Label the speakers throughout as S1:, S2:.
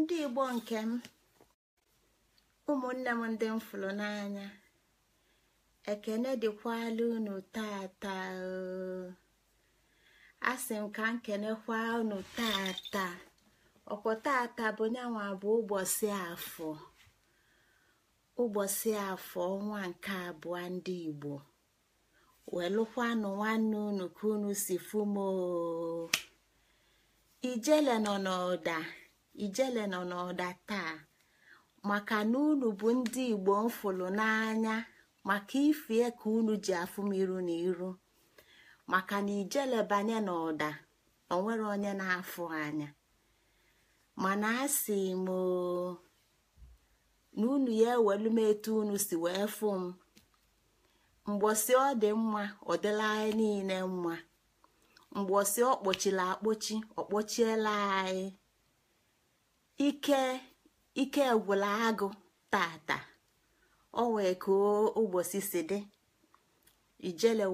S1: ndị igbo nke m ụmụnne m ndị m fụrụ n'anya ekene dịkwala unu tata asị m ka nkenekwa unu tata ọkwọ tata bụ nyanwa bụ ụbọchị afọ ụbọchị afọ ọnwa nke abụọ ndị igbo welụkwanụ nwanne unu ka unu si fumo ijele nọ n'ọda ijele nọ n'ọda taa maka na unu bụ ndị igbo mfụlụ n'anya maka ifie ka unu ji afụ m iru na iru maka na ijelebanye na ụda onwere onye na-afụ anya mana a sị m na unu ya ewelu m etu unu si wee fụ m mgbosi ọ dị mma ọ dịla anyị niile mma mgbosi ọ kpochila akpochi ọ kpochiela anyị ike ike gwụla tata ọ wee koo ụbọchị si dị ijele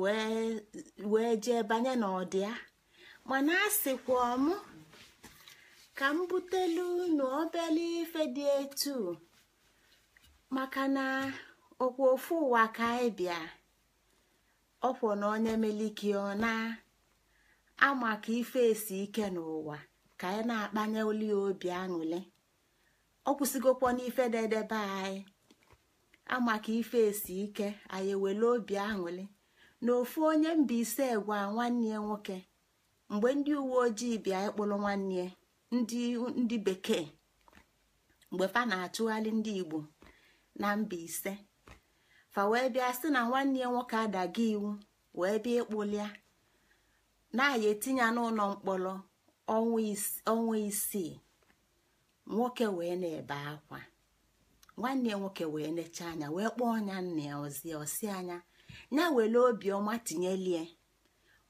S1: wee jee banye n'ọdịa mana a sịkwa m ka m butelu unu obele ife dị etu maka na ọkwa ofu ụwa ka anyị bịa na onye meliki ọ na amaka ife esi ike n'ụwa ka anyị na-akpanye oli obi aṅụle ọ kwụsịgokwa n'ife dedebe anyị amaka ife esi ike anyị ewele obi aṅụli na ofu onye mba ise gwa nwanne nwoke mgbe ndị uwe ojii bịa ịkpụrụ nwanne ndị bekee mgbe fa na-achụgharị ndị igbo na mba ise fa wee bịa sị na nwanne nwoke adaga iwu wee bịa ịkpụlịa na-aya etinye n'ụlọ mkpọrọ ọnwa isii nwoke wee na-ebe akwa nwanne nwoke wee necha anya wee kpọọ anya nna ya ozie osi anya ya were obiọma tinyelie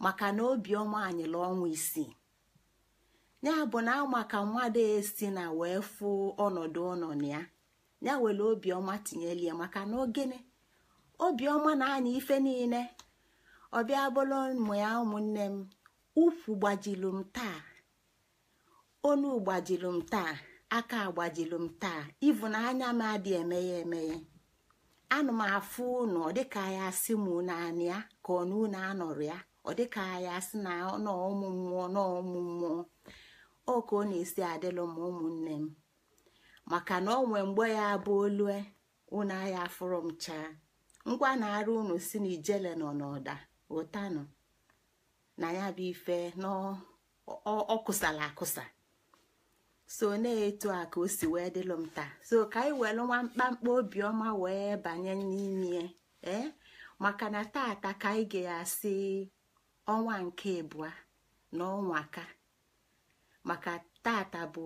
S1: maka na obiọma anyịla ọnwa isii ya bụ na maka mmadụ esi na wee fụ ọnọdụ ọnọdụ na ya ya were obiọma tinyelie maka na ogene obiọma na-anya ife niile ọbịa bụrụ ụmụ ya ụmụnne m ukwu gbajilu m taa onu gbajilu m taa aka agbajilu m taa ivu na anya m adị emeghe emeghe anụ m afụ unu ọ dịka ya asị m naanị ya ka ọ na unu ya ọ dịka ya asị na n'ọmụ mmụọ n'ọmụ mmụọ ọ ka ọ na-esi adịlụ m ụmụnne m maka na ọ mgbe ya bụ olue unu agha afụrụ m chaa ngwa na-arụ unu si na ijele nọ n'ọda ụtanụ na ya bụ ife n'ọkụsala akụsa so na-etu a ka o si wee dịlụ m taa so ka anyị welụ nwa mkpamkpa obiọma wee banye n'ime ee eh? maka na tata ka anyị ga-asị ọnwa nke ịbụa na ọnwa ka maka tata bụ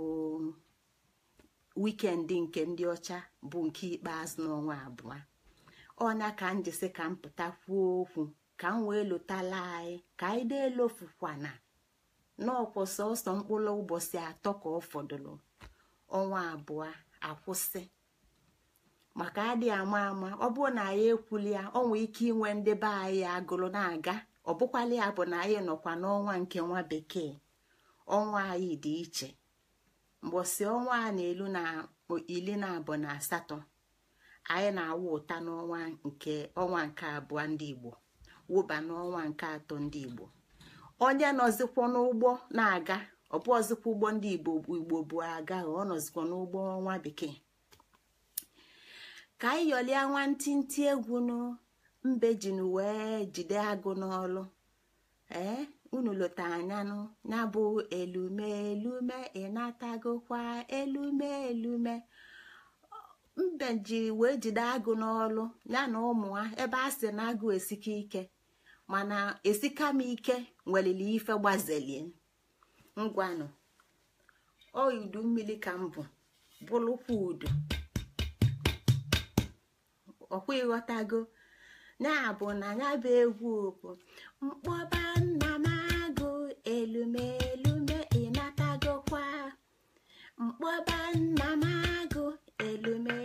S1: wikendi nke ndị ọcha bụ nke ikpeazụ n'ọnwa abụọ ọnya ka m jisi ka m pụta kwuo okwu ka m wee lụtala anyị ka anyị na-elofukwana n'ọkwọ sọsọ mkpụrụ ụbọchị atọ ka ọ fọdụrụ ọnwa abụọ akwụsị maka adị ama ama ọ bụrụ na anyị ekwuli ya ọ nwee ike inwe ndị be anyị agụrụ na-aga ọ bụkwala ya bụ na anyị nọkwa n'ọnwa nke nwa bekee ọnwa anyị dị iche mgbọsị ọnwa a na-elu na iri na abụọ na asatọ anyị na awa ụta n'ọnwa nke ọnwa nke abụọ ndị Igbo wụba n'ọnwa nke atọ ndị Igbo onye nọzikwa n'ụgbọ na-aga ọbụ ọzikwa ụgbọ ndị igbo igbo bụ aga ọ nọzikwa n'ụgbọ ọnwa bekee ka anyị yọlie nwantịntị egwu nụ mbe jin wee jide agụ n'ọlụ ee unu lota anyanụ ya bụ elume elume ịnatagokwa elume elume mbe ji wee jide agụ n'ọlụ ya na ụmụ ha ebe a sị na agụ esike ike mana esika m ike nwelili ife gbazelie ngwanụ ọ udu mmiri ka m bụ bụlụkwa udu ọkwa ịghọtago na-abụ na ya bụ egwu bụ mkpọba nna m agụ elumelume ịnatagokwa mkpọba nna m agụ elume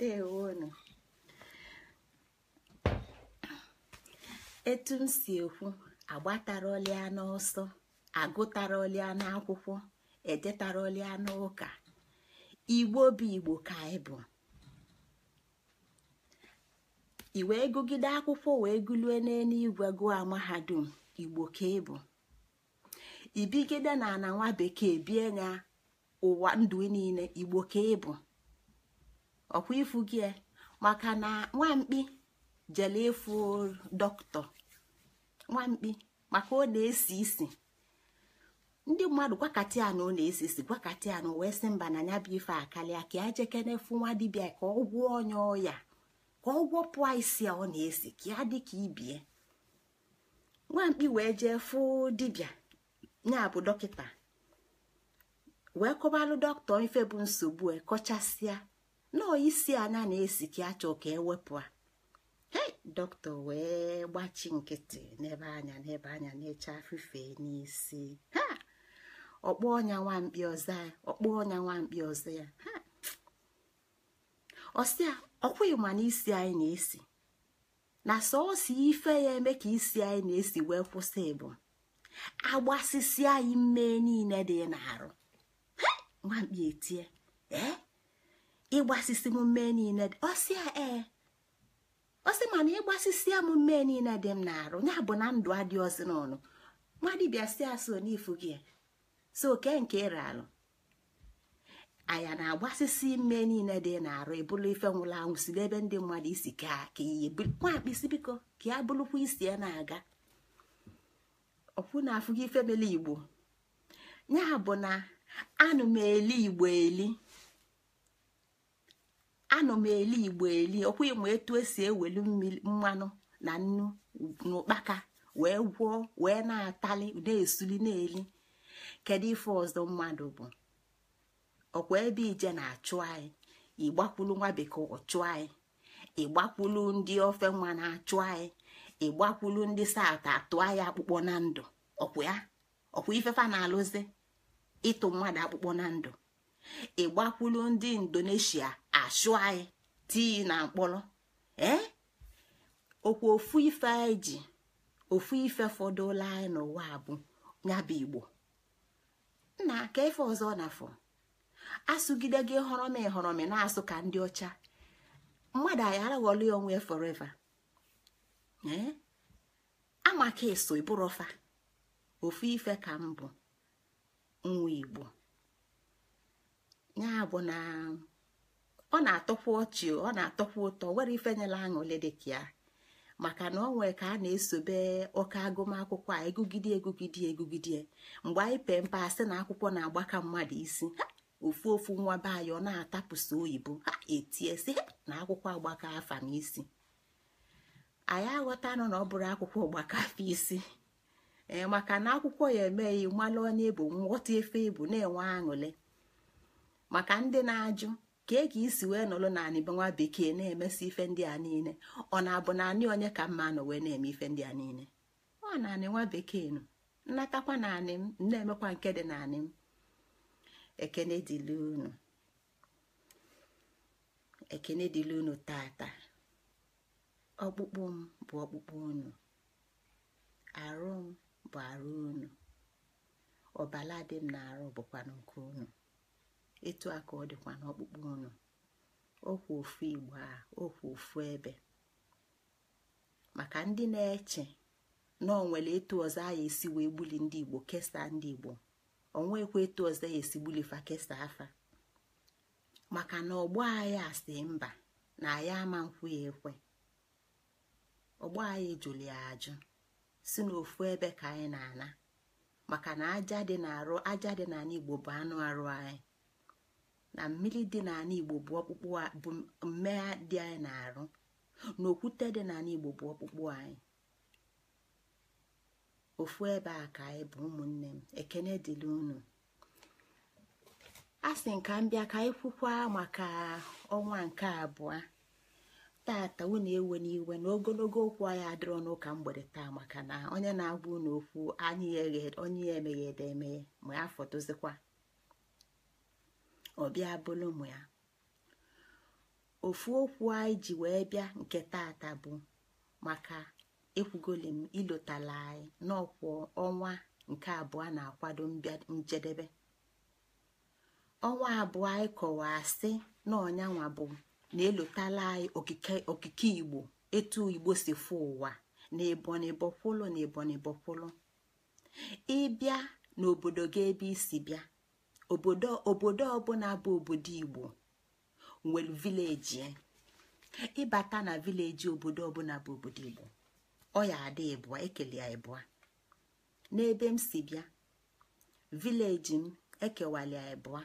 S1: ndeewonu etu m si ekwu agbatara ọlịa n'ọsọ agụtara ọlịa n'akwụkwọ edetara ọlịa n'ụka igbo bụ igbo ka anyị bụ i gụgide akwụkwọ wee gụlue n'eluigwe gụọ mahadum igbo ka ị bụ ibigide na ana nwa bekee bie na ụwa ndụ niile igbo ka ị ọkwa ifu gị maka na nwamkpi jele efu dọkịta nwamkpi maka ọ na-esi isi ndị mmadụ gwakati anụ na-esi isi gwakati anụ wee sị mba na ya bụ ife akalịa ka ajekene efu nwa dibịa ka ọ gwụọ onye ọya ka ọ gwọpụa isi ọ na-esi ka ya dị ka ibie nwamkpi wee jee fụ dibịa nya bụ dọkịta wee kọbalụ dọkịta ife bụ nsogbu e kọchasịa nọọ isi anya na-esi ka achọ ka ewepụ a he dọkịta wee gbachi nkịtị n'ebe anya n'ebe anya na-eche afife n'isi ha ọkpọ ọnya nwamkpi ọzọ ya ọkpọ ọnya nwamkpi ọzọ ya ha ọsịa ọkwụghị ma na isi anyị na-esi na sọọsọ ife ya eme ka isi anyị na-esi wee kwụsị bụ agbasisi anyị mmee niile dị n'arụ nwamkpi etie ee ịgbasisi m mee niile ọsị a ee ọsị na ịgbasisi ya m mee niile dị m na-arụ ya bụ na ndụ adị ọsị n'ọnụ nwa dibịa si aso n'ifu gị so oke nke ịra alụ anya na-agbasisi ime niile dị na-arụ ebulu ife nwụrụ anwụ si n'ebe ndị mmadụ isi ka ka iyi nwa isi biko ka ya bụrụkwa isi ya na-aga ọkwụ na afụghị ife mele igbo ya bụ na anụ m eli igbo eli anọ m eli igbo eli ọkwụghị m etu esi ewelu mmanụ na nnu n'ụkpaka wee gwọọ wee na-atali na-esuli na-eli kedu ife ọzọ mmadụ bụ ọkwa ebe ije na-achụ anyị ịgbakwulu nwa bekee ọchụ anyị ịgbakwulu ndị ofe nwa na-achụ anyị ịgbakwulu ndị sat atụ anyị akpụkpọ na ndụ ọkwa ya ọkwa ifefa na-alụzi ịtụ mmadụ akpụkpọ na ndụ ịgbakwulu ndị indonesia achụ anyị e, tii na mkpọrọ ee eh? okwu ofu ife anyị ji ofu ife fọdụla anyị n'ụwa bụ nyabụ igbo nna ka ife ọzọ na-afọ asụgide gị họrọm họrọmi na-asụ ka ndị ọcha mmadụ anyị ya onwe foreva ee eh? amaka eso ịbụrọfa ofu ife ka m bụ nwa igbo ọ na-atọkwa ọchị ọ na-atọkwa ụtọ were ifenyela aṅụle dịka ya maka na ọ nwee ka a na-esobe ọka agụmakwụkwọ a egugide egugide egugide mgbe anyị pee mpe asị na akwụkwọ na-agbaka mmadụ isi ha ofu ofu nwa be anyị ọ na-atapụsị oyibo ha etiesi na akwụkwọ agbaka afa isi anyị aghọta nọ na ọ bụrụ akwụkwọ agbaka afa isi ee maka na akwụkwọ ya emeghị mmalụ onye bụ nghọta efe ebu na-enwe aṅụle maka ndị na-ajụ ka e ga isi wee nọrọ na nwa bekee na-emesi ife ndị a niile ọ na-abụ na anyị onye ka mma nọ wee na-eme ife ndị a niile ọ na anị nwa bekee nụ nnatakwa na anị m na-emekwa nke dị na anị m ekene dịlụ unu ekene unu tata ọkpụkpụ m bụ ọkpụkpụ unu arụ m bụ arụ unu ọbala dị m na arụ bụkwa nke unu etu a ka ọ dịkwa n'ọkpụkpụ unu okwu ofu igbo a okwu ofu ebe maka ndị na-eche na ọ nwere etu ọzọ a esi wee gbuli ndị igbo kesaa ndị igbo onwekwa etu ọzọ ya esi fa kesaa afa maka na ọgbọ agha asị mba na agha ama nkwụ ya ekwe ọgbọ agha jụrụ ya ajụ si n'ofu ebe ka anyị na-ana maka na aja dị n'arụ aja dị n'ala igbo bụ anụ arụ anyị na mmiri dị n'ala igbo bụ ọkpụkpụ bụ mmegha dị anyị na-arụ na okwute dị n'ala igbo bụ ọkpụkpụ anyị ofu ebe a ka anyị bụ ụmụnne m ekene dịrị unu a sị nka m bịa ka anyị kwukwa maka ọnwa nke abụọ tata unu ewe n'iwe na ogologo okwu anyị adịrọ n'ụka mgbede taa maka na onye na-agwa unu okwu anyị onye ya emeghede emeghe ma ya fọtozikwa ọ bịa bụlụ ụmụ ya ofu okwu anyị ji wee bịa nke tata bụ maka ekwugolim m ilotala anyị n'ọkwa ọnwa nke abụọ na-akwado njedebe ọnwa abụọ anyị kọwaa sị na bụ na elotala anyị okike igbo etu igbo si fụ ụwa na ebonibọkwụlụ na ebonibọkwụlụ ịbịa n'obodo gị ebe isi bịa obodo obodo ọbụla bụ obodo igbo nwere vileji ịbata na vileji obodo ọbụla bụ obodo igbo ọ ya adị ịbụa ekele ya ịbụa n'ebe m si bịa vileji m ekewala ya ịbụa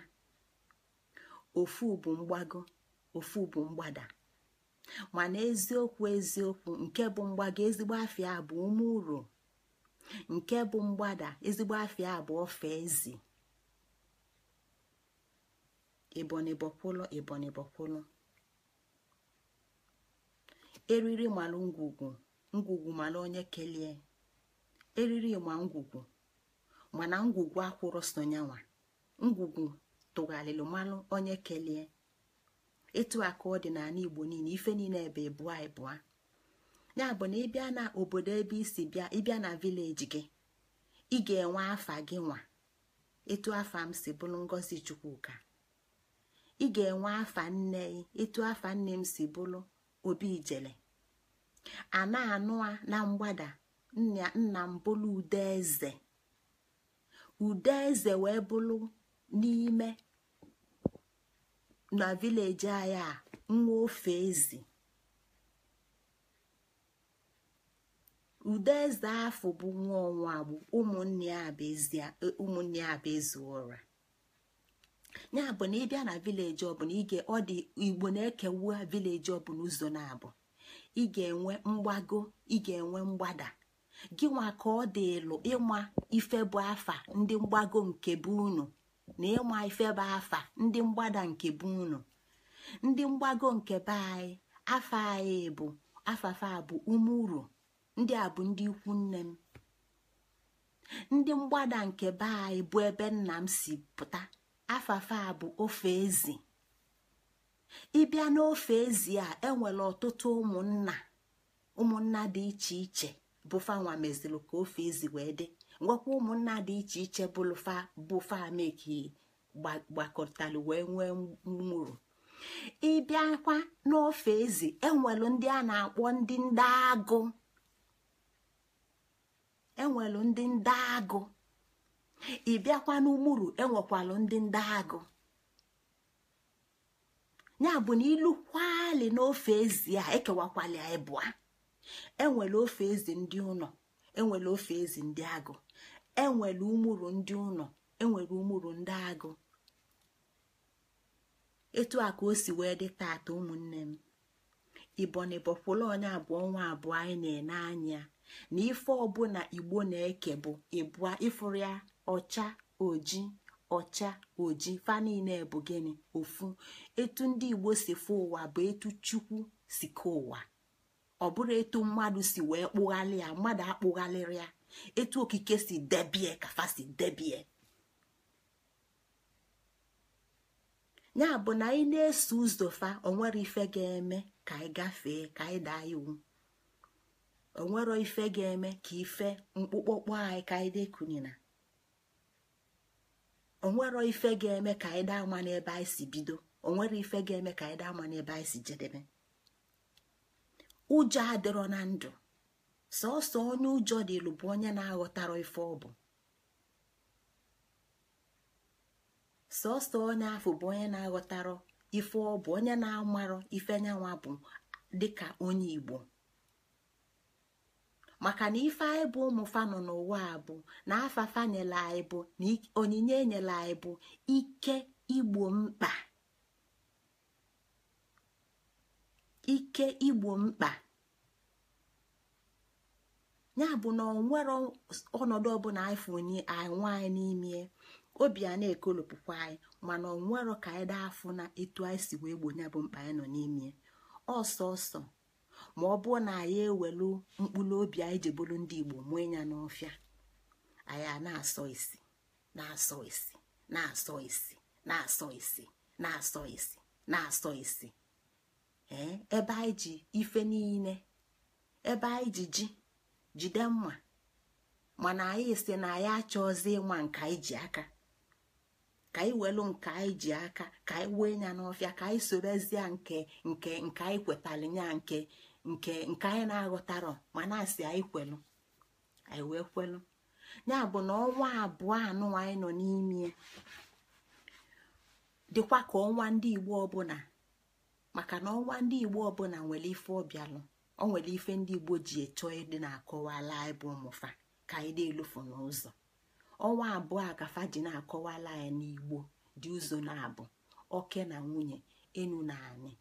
S1: ofu bụ mgbago ofu bụ mgbada mana eziokwu eziokwu nke bụ mgbago ezigbo afịa bụ ume uru nke bụ mgbada ezigbo afịa bụ ofe eze. ebonyi bọkwụlụ ebonyi bọkwụlụ eriri malụ ngwugwu ngwugwu malụ onye kelie eriri ma ngwugwu mana ngwugwu akwụrụ sonyanwa ngwugwu tụgharịrị malụ onye kelie etu a ka ọ dị n'ala igbo niile ife niile ebe bụa ịbụa ya bụ na ịbịa na obodo ebe isi bịa ịbịa na vileji gị ị ga-enwe afa gị nwa etu afa m si bụrụ ngozi chukwuka ị ga-enwe afa nne gị etu afa nne m si bụrụ obi ijele a na-anụ na mgbada nna m bụrụ eze wee bụrụ n'ime na vileji anyị a nwa ofe ezi ude eze afọ bụ nwa ọnwa agbụ ụmụnne ya bụ ezi ụra ya bụ na ịbịa na vileji ọbụla ige ọ dị igbo na-ekewua vileji ọbụla ụzọ na-abụ ị ga-enwe mgbago ị ga-enwe mgbada gị nwa ka ọ dị ịlụ ịma ife bụ afa ndị mgbago nke bụ unu na ịma ife bụ afa ndị mgbada nke bụ unu ndị mgbago nke be anyị afa anyị bụ afafa bụ umuru ndị a bụ ndị ikwu nne m ndị mgbada nke be anyị bụ ebe nna m si pụta afafa a bụ ofe ezi ịbịa n'ofe ezi a enwere ọtụtụ ụmụnna ụmụnna dị iche iche bụfanwa meziri ka ofe ezi wee dị ngwakwa ụmụnna dị iche iche bụlụfa bụfa meki gbakọtalụ wee nwee mmụrụ ịbịakwa n'ofe ezi enwelụ ndị a na-akpọ ndị e ndị agụ enwelụ ndị ndị agụ ị bịakwa n'umuru enwekwalụ ndị ndị agụ ya bụ na ilu kwali n'ofe ezi a ekewakwali ịbụa enwere ofe ezi ndị ụnọ enwere ofe ezi ndị agụ enwere umuru ndị ụlọ enwere umuru ndị agụ etu a ka o si wee dị tata ụmụnne m ibonibọkwụla onye abụọ nwa abụọ anyị na-ene na ife ọbụla igbo na-eke bụ ịbụa ifuru ya ọcha oji ọcha oji fa na bụ ofu etu ndị igbo si fụ ụwa bụ etu chukwu si ka ụwa ọ bụrụ etu mmadụ si wee kpụghalị ya mmadụ akpụghalịrị ya etu okike si debie kafa si debie ya bụ na anyị na-eso ụzọ fa onwere ife ga-eme ka anyị ka anyị daa iwu onwere ife ga-eme ka ife mkpụkpọkpọ anyị ka anyị dekunina onwero ife ga-eme ka anyị daa ama n'ebe anyị si bido onwere ife ga-eme ka anyị daa ama n'ebe anyị si jedebe ụjọ adịrọ na ndụ sọọsọ onye ụjọ dị dịlụ bụ onye na-aghọtara ife ọ bụ sọsọ onye afọ bụ onye na-aghọtara ife ọ bụ onye na-amarọ ife nyanwa bụ dịka onye igbo maka na ife anyị bụ ụmụ nọ n'ụwa bụ na afafa nyela anyị bụ na onyinye nyela anyị bụ ike igbo mkpa ya bụ na onwere ọnọdụ ọbụla anyị anwa anyị n'ime obi a na-ekolopụkwa anyị mana onwero ka anyị daa afụ na etu anyị si wee nya bụ mkpa anyị nọ n'ime ọsọsọ ma ọ bụrụ na anyị ewelu mkpụrụ obi anyị ji bụrụ ndị igbo mụọ ya n'ọfịa anyị a na-asọ isi na-asọ isi na-asọ isi na-asọ isi na-asọ isi na-asọ isi ee ebe anyị ji ife niile ebe anyị ji ji jide mma mana anyị si na anyị achọzi ịma nka anyị ji aka ka anyị welu nke anyị ji aka ka anyị wee ya n'ọfịa ka anyị sorozie nke nke nke anyị kwetalị ya nke nke nke anyị na-aghọtarọ ma na-asị anyị kwelu anyị wee kwelu ya bụ na ọnwa abụọ anụ anyị nọ n'ime dịkwa ka ọnwa ndị igbo ọbụla maka na ọnwa ndị igbo ọbụla nwere ife ọbịalụ ọ nwere ife ndị igbo ji eto ịdị na-akọwala anyị bụ ụmụfa ka anyị na-elufu n'ụzọ ọnwa abụọ a ka ji na-akọwala anyị n'igbo dị ụzọ na-abụ oke na nwunye enu na anị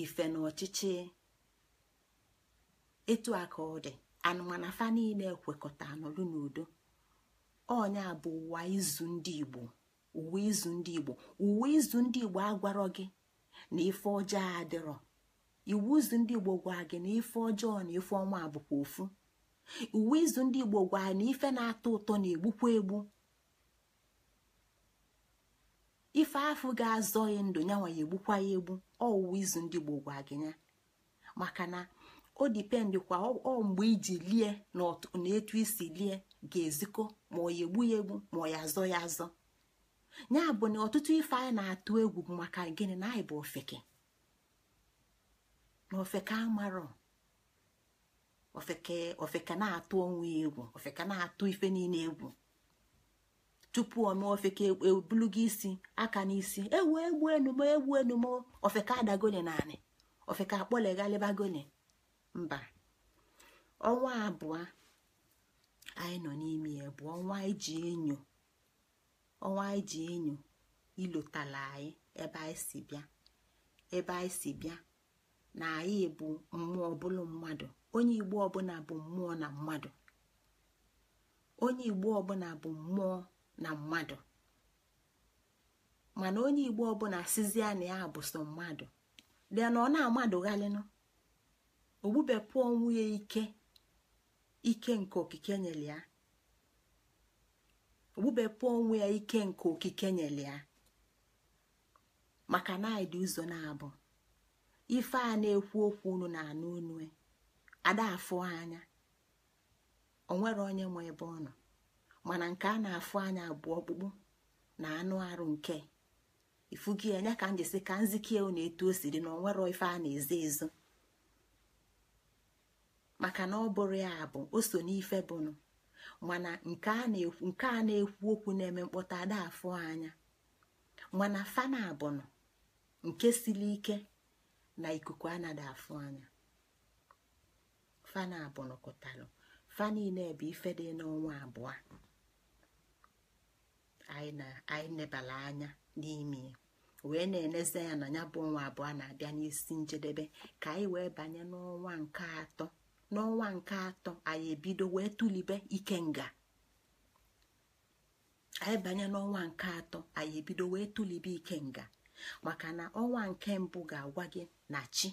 S1: ife na ọchịchị etu a ka ọ dị anụmanụ fa niile ekwekọta anọlụ n'udo ọnya bụ ụwa izu ndị igbo uwe izu ndị igbo uwe izu ndị igbo agwarọ gị na ife ọjọọ adịrọ iwu izu ndị igbo gwa gị na ife ọjọọ na ife ọnwa bụkwa ofu uwe izu ndị igbo gwa na ife na-atọ ụtọ na-egbukwa egbu ife afụ ga-azọ ya ndụ ya nwa ya egbukwa ya egbu ọwụwa izu ndị gboo gwa gị ya maka na o dipendị kwa ọ mgbe iji lie na etu isi lie ga-ezikọ ma ọ ya egbu ya egbu ma ọ ya azọ ya azọ ya bụ na ọtụtụ ife anyị na-atụ egwu bụ maka gịnị na anyị bụ ofeke na ofeke amarọ ofeke ofeke na-atụ onwe egwu ofeke na-atụ ife niile egwu tupu ome ofeke ebulu e gị isi aka n'isi ewu egbu enumo egbu enumo ofeka adagoni naanị ofeka akpọleghalịbagoni mba ọnwa abụọ anyị nọ n'ime ya bụ ọnwa iji enyo ọnwa iji enyo ilotala anyị ebe anyị si bịa ebe anyị si bịa na anyị bụ mmụọ ọbụla mmadụ onye igbo ọbụla bụ mmụọ na mmadụ onye igbo ọbụla bụ mmụọ na mmadụ mana onye igbo ọbụla sizie na ya bụ sọ mmadụ bịa na ọ na-amadụghalịnụ ogbubepụ onwe ya ike ike nke okike nyere ya onwe ike nke okike nyere ya maka na anyị dị ụzọ na-abụ ife a na-ekwu okwu unu na anụ unu ada anya onwere onye nwe ebe ọ nọ mana nke a na-afụ anya abụọ ọkpụkpụ na anụ arụ nke ifugi ya ka m ka nzikie na etu osiri siri na onwero ife a na-ezo ezo maka na ọ bụrụ ya bụ o so n'ife bụnụ mana nke a na-ekwu okwu na-eme mkpọta ada afụ anya mana fana abụnụ nke siri ike na ikuku anada afụ anya fana abụnụ kụtalụ fa niile bụ ife dị n'ọnwa abụọ anyị na anyị nebala anya n'ime wee na-eneze ya na ya bụ ọnwa abụọ na-abịa n'isi njedebe ka anyị wee banye n'ọnwa nke atọ n'ọnwa nke atọ anyị ebido wee tụlibe ike nga. banye maka na ọnwa nke mbụ ga-agwa gị na chi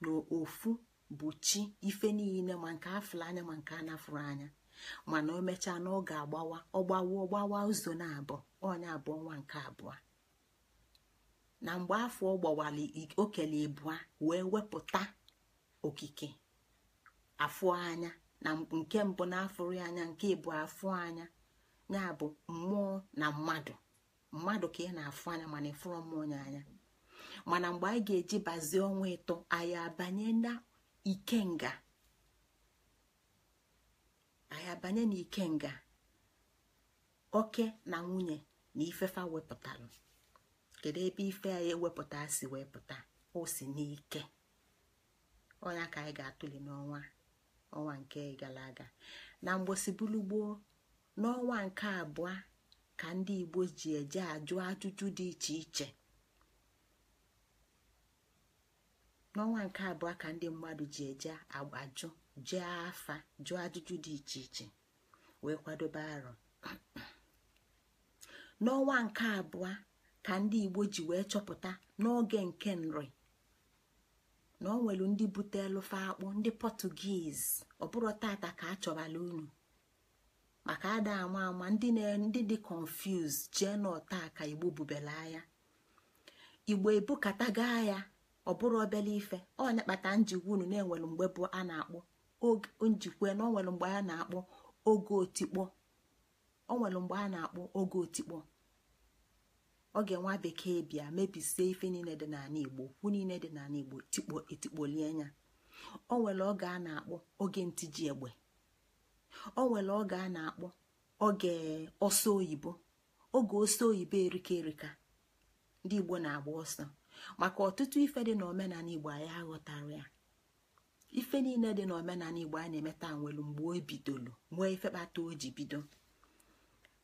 S1: na ofu bụ chi ife niile ma nke afụrụ anya ma nke anafụrụ anya mana o mechaa na ọ ga-agbawa ọgbawa ọgbawa ụzọ na-abụ onye abụ ọnwa nke abụọ na mgbe afọ ọ okele ịbụa wee wepụta okike afụ anya na nke mbụ na-afụrụ anya nke ịbụ afụ anya ya bụ mmụọ na mmadụ mmadụ ka ị na-afụ anya mana ịfụrụ mmụọ ya anya mana mgbe anyị ga-eji bazie ọnwa ịtọ anyị abanye na ikenga anyị abanye n'ike nga oke na nwunye na ifefa wepụtara kedu ebe ife ya ewepụta si wee pụta o si n'ike ọnya ka anyị ga-atụli n'ọnwa nke gara aga na mgbosibulu gboo n'ọnwa nke abụọ ka ndị Igbo ji eje ajụ ajụjụ dị iche iche n'ọnwa nke abụọ ka ndị mmadụ ji eje ajụ. jee afa jụọ ajụjụ dị iche iche wee kwadobe arọ n'ọnwa nke abụọ ka ndị igbo ji wee chọpụta n'oge nke nri na ọ ndị bute fe akpụ ndị pọtugiz ọ bụrụ tata ka a chọbala unu maka ada ama ama ndị dị confuse jee n'ọta ka igbo bubela ya igbo gaa ya ọ bụrụ obele ife ọ na-akpata njigwa unu na enwelu mgbe bụ a na akpụ njikwe na onwere mgbe a na-akpọ oge otikpo onwere mgbe a na-akpọ oge otikpo oge nwa bekee bịa mebisie ife niile dị n'ala igbo okwu niile dị n'ala igbo tikpo etikpolie anya o nwere oge a na-akpọ oge ntiji egbe o nwere oge a na-akpọ oge ọsọ oyibo oge ọsọ oyibo erika erika ndị igbo na-agba ọsọ maka ọtụtụ ife dị na omenala igbo anyị aghọtara ya ife niile dị n'omenala igbo a na-eme taa nwelu mgbe o bidolu nwee ife kpata o ji bido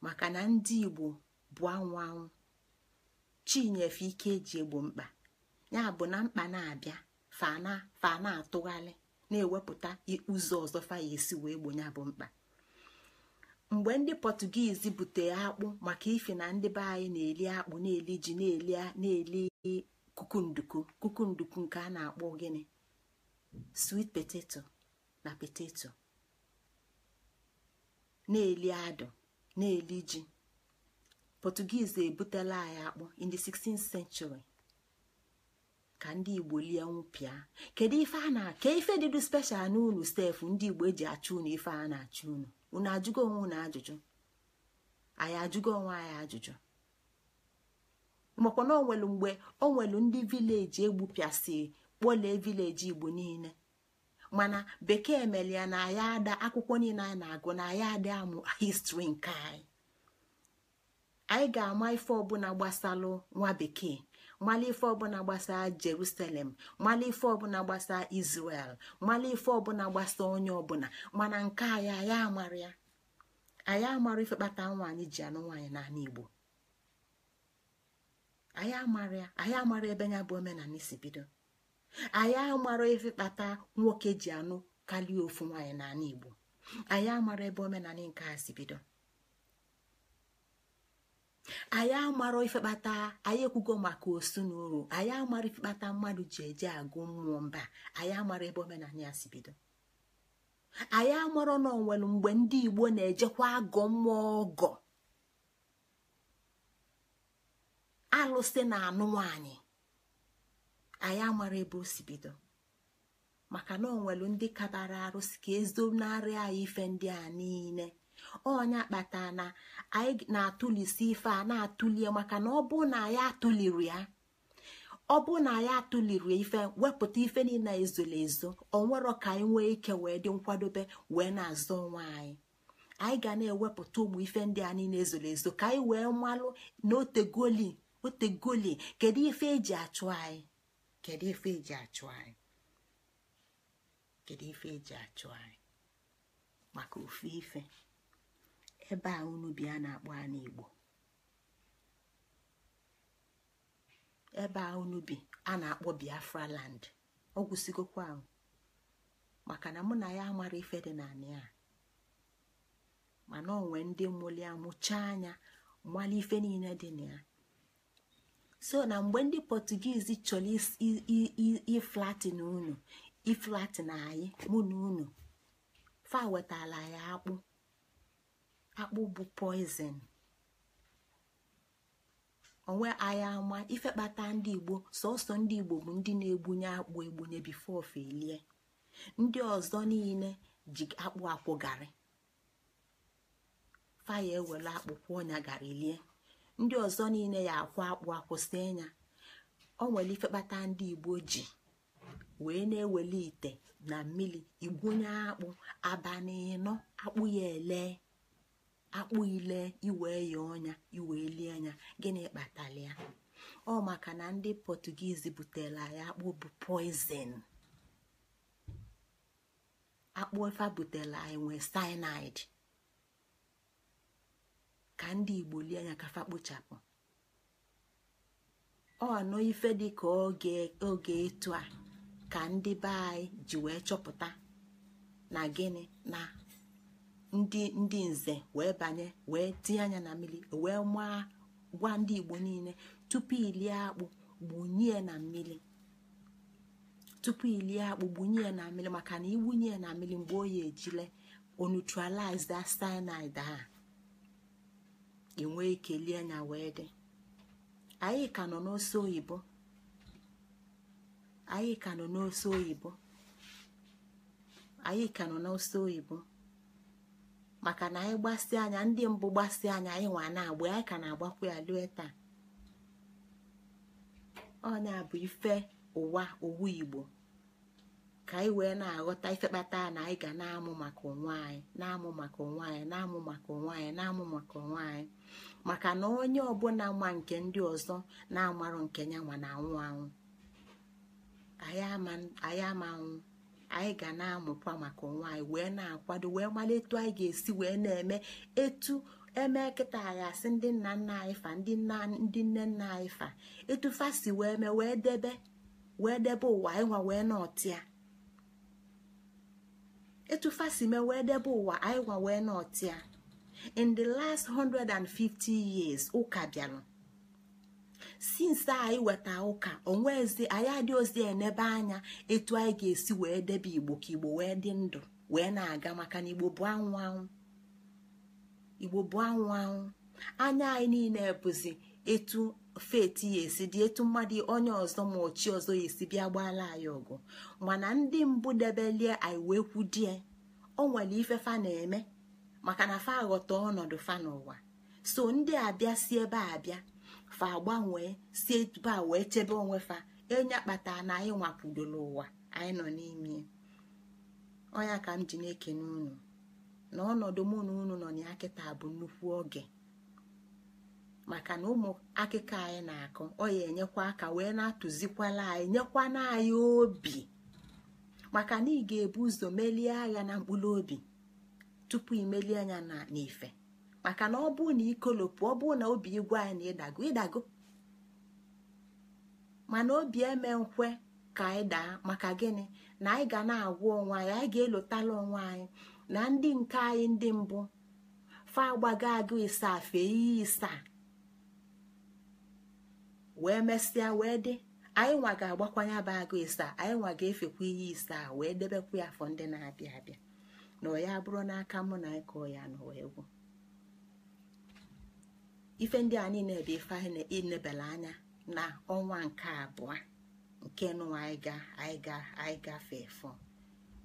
S1: maka na ndị igbo bụ anwụ anwụ chinyefe ike eji egbo mkpa ya bụ na mkpa na-abịa fa na-atụgharị na-ewepụta ụzọ ọzọ faya esi wee gbo ya bụ mkpa mgbe ndị pọtụgizi bute akpụ maka ife na ndị be anyị na-eli akpụ na-eli ji na-eli kukunduku kukunduku nke a na-akpọ gịnị sweet poteto na poteto na-eli adụ na-eli ji pọtụgiizi ebutela anyị akpọ in the 16th century ka ndị igbo lie nwụpịa kedu ife a na ka ife dịdu special n'ụlọ stefu ndị igbo eji achụ unu ife a na-achụ unu unu ajụgo onwe ajụjụ anyị ajụgo onwe anyị ajụjụ makwa na onwelu mgbe onwelu ndị vileji egbupịasị kpọlee vileji igbo niile mana bekee mere ya na ya ada akwụkwọ niile anyị na-agụ na ya adị amụ histri nke anyị anyị ga-ama ife ọbụla gbasalụ nwa bekee mala ife ọbụla gbasaa jerusalem mala ife ọbụla gbasaa isrel mala ife ọbụla gbasaa onye ọbụla mana nke anyị anyị amara ya anyị amara ife kpata nwaanyị ji anụ nwaanyị n'ala igbo anyị amara ya anyị amara ebe ya, bụ omenala si bido anyị amara efe kpata nwoke ji anụ kalie ofu nwaanyị n'ala igbo anyị amara ebe omenala nke a si bido anyị amara ifekpata anyị ekwugo maka osu na uru anyị amara ifekpata mmadụ ji eje agụ mmụọ mba anyị amara ebe omenala ya si bido anyị amara na onwere mgbe ndị igbo na-ejekwa agụ mmụọ ọgọ alụsị na anụ anyị amara ebe o si bido maka na onwelu ndị kabara arụsị ka ezonarị anyị ife ndị a niile onya kpata na anyị na-atụlisi ife a na-atụlie maka na ọ bụ na anyị atụliri ya ọ bụ na anyị atụliri ife wepụta ife niile ezoro ezo onwero ka anyị nwee ike wee dị nkwadobe wee na-azọ onwe anyị anyị ga na-ewepụta ụmụ ife ndị a niile ezoro ezo ka anyị wee mmalụ na otegoli otegoli kedu ife eji achụ anyị kedu ife eji achụ anyị e achụ anyị maka ofe ife ebe a unu a na-akpọ anụ igbo ebe a unu a na-akpọ biafra land ọ ahụ maka na mụ na ya mara ife dị na a mana onwe ndị mụli amụcha anya mmalị ife niile dị na ya so na mgbe ndị pọtugiizi chọrọ iflatin unu iflatin anyị mụ na unu fa ya akpụ akpụ bụ poizin onwe anyị ama ife kpata ndị igbo sọsọ ndị igbo bụ ndị na-egbunye akpụ egbunye bifo felie ndị ọzọ niile ji akpụ akwụ garị faya ewere akpụ kwụọ ọnya garị lie ndị ọzọ niile ya akwụ akpụ akwụsị anya o nwere ife kpata ndị igbo ji wee na-eweli ite na mmiri igwunye akpụ aba n'ịnọ akpụ ya ele akpụ ile iwe ya ọnya iwe lie anya gịnị kpatara ya ọ maka na ndị pọtugiizi butere ya akpụ bụ poizin akpụ efe butela anyị nwee cyanide ka ndị igbo lie anya kafa kpochapụ ọ anọ ife dị ka oge etu a ka ndị be anyị ji wee chọpụta na gịnị na ndị ndị nze wee banye wee tinye anya na mmiri wee maa gwa ndị igbo niile tupu ilie akpụ gbunye na mmiri tupu ilie akpụ gbunye na mmiri maka na iwunye na mmiri mgbe oyi ejile onutralize cyanide a ị nwee ike lie anya wee dị anyị ka nọ n'ose oyibo anyị ka nọ n'ose oyibo anyị ka nọ n'ose oyibo maka na anyị gbasị anya ndị mbụ gbasi anya anyị nwa na-agba anyị ka na-agbakwa ya lue taa ọnya bụ ife ụwa owu igbo ka anyị wee na-aghọta ifekpata na anyị ga na-amụ maka onwe anyị na-amụ maka onwe anyị na-amụ maka onwe anyị na-amụ maka onwe anyị maka na onye ọbụla ma nke ndị ọzọ na-amarụ nke ya ma na-anwụ anwụ anyị ama anyị ga na-amụkwa maka onwe anyị wee na-akwado wee mara etu anyị ga-esi wee na-eme etu eme kịta anyị asị ndị nna nna anyị fa ndị nne nna anyị fa etu fa si wee mee wee debe wee debe ụwa ịnwa wee nọtịa etufa si me wee debe ụwa anyị wee nọtịa in the last 150 years ụka bịara since anyị weta ụka onwezi anyị adị ozi enebe anya etu anyị ga-esi wee debe igbo ka igbo wee dị ndụ wee na-aga maka na igbo bụ anwụ anwụ anya anyị niile bụzi etu feti ya esi dị etu mmadụ onye ọzọ ma ochi ọzọ ya esi bịa gbaala anyị ọgụ mana ndị mbụ debelie anyị wee kwudie o nwere ife fa na-eme maka na fa ghọta ọnọdụ fa n'ụwa so ndị abịa si ebe abịa fa gbanwee si ebe a wee chebe onwe fa enye kpata na anyị nwapụdoro ụwa anyị nọ n'ime onya ka m ji na-ekene unu na ọnọdụ mụ na unu nọ na ya kịta bụ nnukwu oge maka na ụmụ akịka anyị na-akụ ọ ya enyekwa aka wee na-atụzikwala anyị nyekwana anyị obi maka na ị ga-ebu ụzọ melie agha na mkpụrụ obi tupu imelie anya na n'ife maka na ọ bụrụ na ikolopụ ọ bụrụ na obi igwe anyị na ịdago ịdago mana obi eme nkwe ka anyị daa maka gịnị na anyị ga na-agwa onwe anyị anyị ga-elotala onwe anyị na ndị nke anyị ndị mbụ fa agbago agụ ịsa fee iyi ịsaa wee mesịa wee dị anyị nwa ga-agbakwanye bụ agụ isaa anyị nwa ga-efekwa ihe isaa wee debekwa ya afọ ndị na-abịa abịa na ọya bụrụ n'aka mụ na ịkọ ya n'ụwa egwu ife ndị a niile ebe ife anyị na-enebela anya na ọnwa nke abụọ nke nụwa anyị ga anyị ga anyị gafe fọ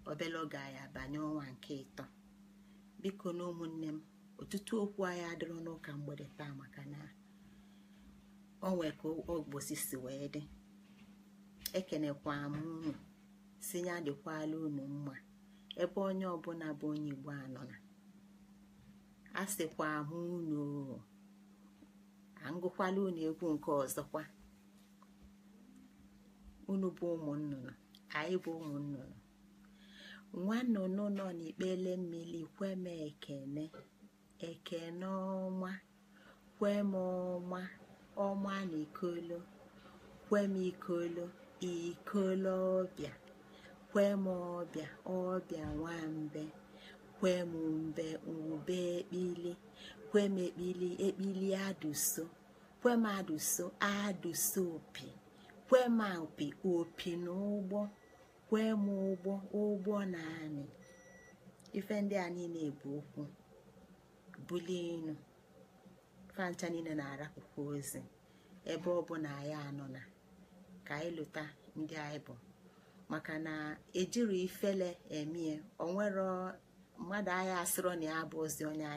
S1: obele oge anyị abanye ọnwa nke ịtọ biko na ụmụnne m ọtụtụ okwu anyị adịrọ n'ụka mgbede taa maka na. onwe ka ogbosi si wee dị ekenekwa m unu si ya dịkwala unu mma ebe onye ọbụla bụ onye igbo anọ na a sịkwa m unu angụkwala unu egwu nke ọzọkwa unu bụ ụmụ nnụnụ anyị bụ ụmụ nnụnụ nwa nnụnụ nọ n'ikpele mmiri kwe m ekene ekene ọma kwem ọma ọma na ikolo kwem ikolo ikolo ọbịa kwe m ọbịa ọbịa mbe, kwe m mbe ube ekpili kwe m ekpili ekpili adụso m aduso adụso opi m opi opi na ụgbọ m ụgbọ ụgbọ na anị ife ndị a niile bụ okwu bulie enu fancha niile na-arapụkwa ozi ebe ọ bụ na anyị anọ na ka anyị lụta ndị anyị bụ maka na ejiri ifele emie onwero mmadụ anyị asịrọ na ya bụ ozi onye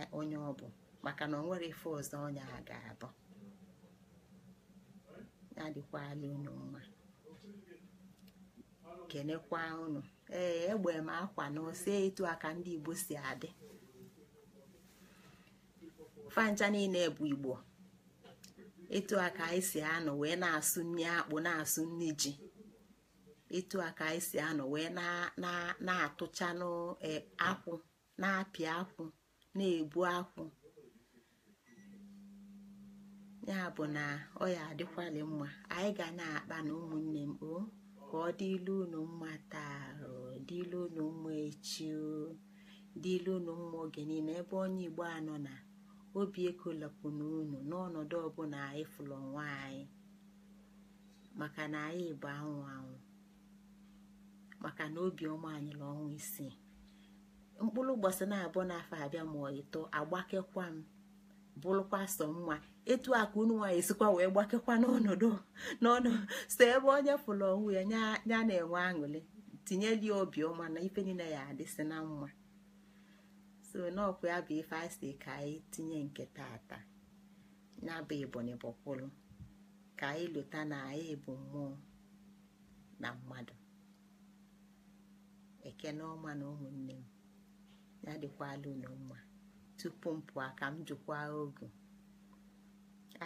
S1: ọ bụ maka na onwere ife ọzọ onye a ga-abụ ya dịkwala unu mma kenekwa unu ee egbe m akwa na ose etu aka ndị Igbo si adị fancha niile bụ igbo etu aka anyị si anọ wee na-asụ nri akpụ na-asụ nri ji etu aka anyị si anọ wee na-atụcha e, akwụ na-apị akwụ na-ebu akwụ ya bụ na ọya ya mma anyị ga na-akpa na ụmụnne m o oh, ka ọ dịlu unu mma taa dịlu unu mma echi oh, dịlu unu mma oge niile ebe onye igbo anọ na obi ekolapụna unu n'ọnọdụ ọbụla anyị fụlụ onwe anyị maka na anyị bụ anwụ anwụ maka na obiọma anyị na ọnwa isii mkpụrụ ụbọchị na-abụọ n'afọ abịa ma ọ ịtọ agbakekwa m bụrụkwa sọ nwa etu a ka unu nwaanyị sikwa wee gbakekwa n'ọnọdụ n'ọnụ so ebe onye fụrụ onwe ya ya na-enwe aṅụrị tinyeli obiọma na ife niile ya adịsị na mma so n'ọkụ ya bụ ife a ka anyị tinye nke tata ya bụ Ebonyi bọkwụlụ ka anyị lụta na anyị bụ mmụọ na mmadụ eke ọma na ụmụnne m ya dịkwala unu mma tupu m pụọ ka m jụkwa ogu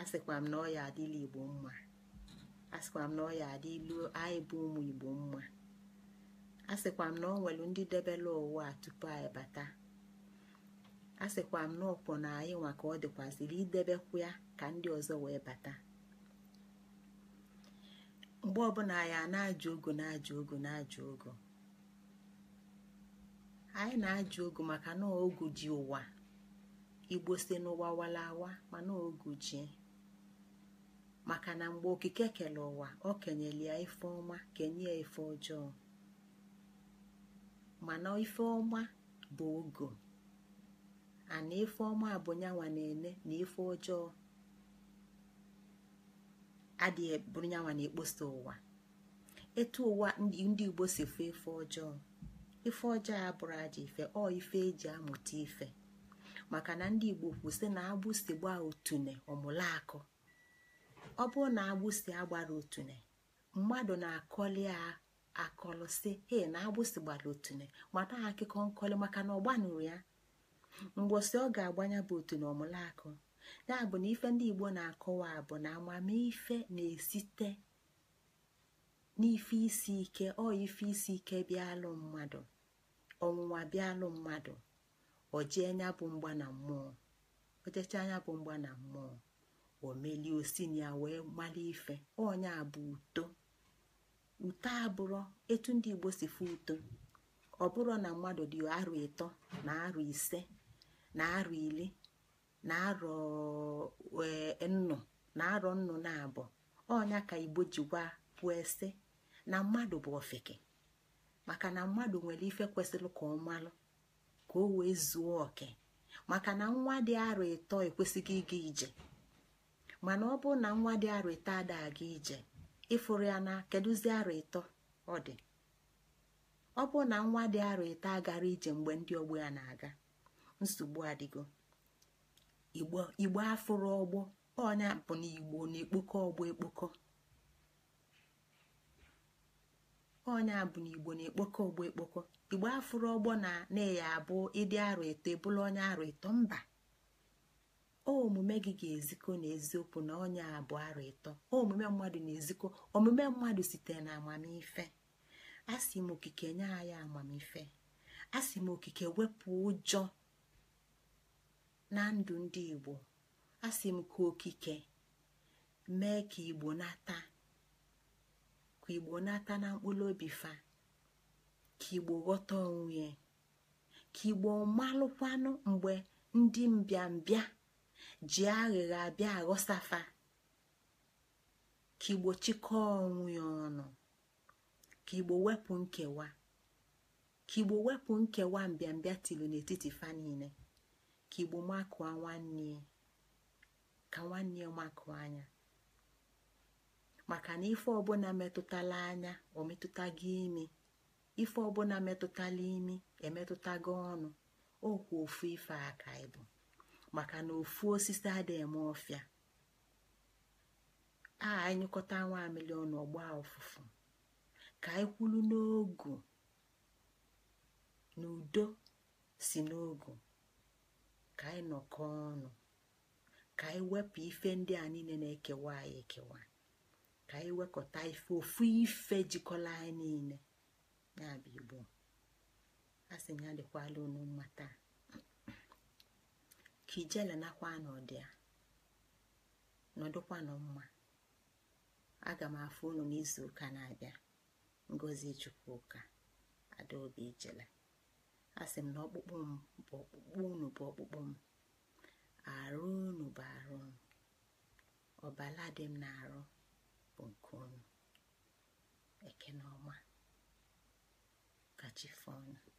S1: asịkwa m na ọ ya adịla igbo mma asịkwa m na ọ ya adịlu anyị bụ ụmụ igbo mma asịkwa m na ọ nwere ndị debela ụwa tupu anyị bata a sịkwa m n'ọkpọ na anyị nwa ka ọ dịkwaziri idebekwu ya ka ndị ọzọ wee bata mgbe ọbụla anyị na-ajụ ogo na-ajụ ogo na-ajụ ogo anyị na-ajụ ogo maka na ogu ji ụwa igbo si n'ụwa walawa mana ogu ji maka na mgbe okike kere ụwa ọ kenyere ya ife ọma kenye ya ife ọjọọ mana ife ọma bụ ogo ana ife ọma abụnyanwa na-ene na ife ọjọọ adịghị e, bụrụnyanwa na-ekposa ụwa etu ụwa ndị igbo si fụ ife ọjọọ ife ọjọọ ya bụrụ aja ife ọ ife eji amụta ife maka na ndị igbo kwụsị na agbụsi gbaa otune ọmụlakụ ọ bụrụ na agbụsi agbara otune mmadụ na-akọli a akọlụsị he na agbụsi gbara otune mata akụkọ nkọli maka na ọ gbanụrụ ya mgbọsị ọ ga-agbanya bụ otu na ọmụlaakụ ya bụ na ife ndị Igbo na-akọwa bụ na amamife na-esite n'ife isi ike ọ ife isi ike bịalụ mmadụ ọnwụnwa bịalụ mmadụ ojee anya bụ mgba na mmụọ ojecha anya bụ mgba na mmụọ omelie osinya wee mara ife onye a bụ uto uto abụrụ etu ndị Igbo si fụ uto ọ bụrụ na mmadụ dị arụ ịtọ na arụ ise na arọ iri na e, arọ nnụ na arọ nnụ na abụ ọnya ka igbo ji gwa kwuo ese na mmadụ bụ ofeke maka na mmadụ nwere ife kwesịrị ka ọ malụ ka o wee zuo oke maka na nwa dị arọ ịtọ ekwesịghị ịga ije mana ọ bụrụ na nwa dị arọ ịtọ ada aga ije ịfụrụ ya na kedụzi arọ ịtọ ọ dị ọ bụrụ na nwa dị arọ ịtọ agara ije mgbe ndị ọgbọ ya na-aga nsogbu adịgo igbo afụrụ ọgbọ ọnya bụ na igbo na-ekpokọ ọgbọ ekpokọ bụ na igbo na-ekpokọ ọgbọ ekpokọ igbo afụrụ ọgbọ na na-eya abụ ịdị arọ eto ebụla onye arọ eto mba omume gị ga-ezikọ n'eziokwu na ọnya bụ arọ eto omume mmadụ na-ezikọ omume mmadụ sitere na amamife asị m okike nye anyị amamife asị m okike wepụ ụjọ na ndụ ndị igbo asị m ka okike mee ka igbo nata ka igbo nata na mkpụrụ obi fa ka igbo ghọta onwe ka igbo malụkwanụ mgbe ndị mbịambịa ji aghịgha abịa aghọsafa ka igbo chịkọọ onwe ọnụ ka igbo wepụ nkewa ka igbo wepụ nkewa mbịambịa tiri n'etiti fa niile ka igbo makụọ nwanne ya ka nwanne ya anya maka na ife ọbụla metụtala anya o metụta gị imi ife ọbụla metụtala imi emetụta gị ọnụ okwu ofu ife aka ịbụ maka na ofu osisi adị eme ọfịa a anyịkọta nwa amịlị ọgba ụfụfụ ka anyị kwulu n'ogu n'udo si n'ogu ka anyị nọkọ ọnụ ka anyị wepụ ife ndị a niile na-ekewa anyị ekewa ka anyị wekọta ife ofu ife jikọla anyị niile ya bụ igbo a sị ya dịkwala unu mma taa ka ijele nakwa n'ọdị a nọdụkwanụ mma aga m afụ unu n'izu ụka na-abịa ngozi chukwuka adaobi ijele a m na ọkpụkpụ m bụ ọkpụkpụ unu bụ ọkpụkpụ m arụ unu bụ arụ m ọbala dị m na-arụ bụ nke unu eke na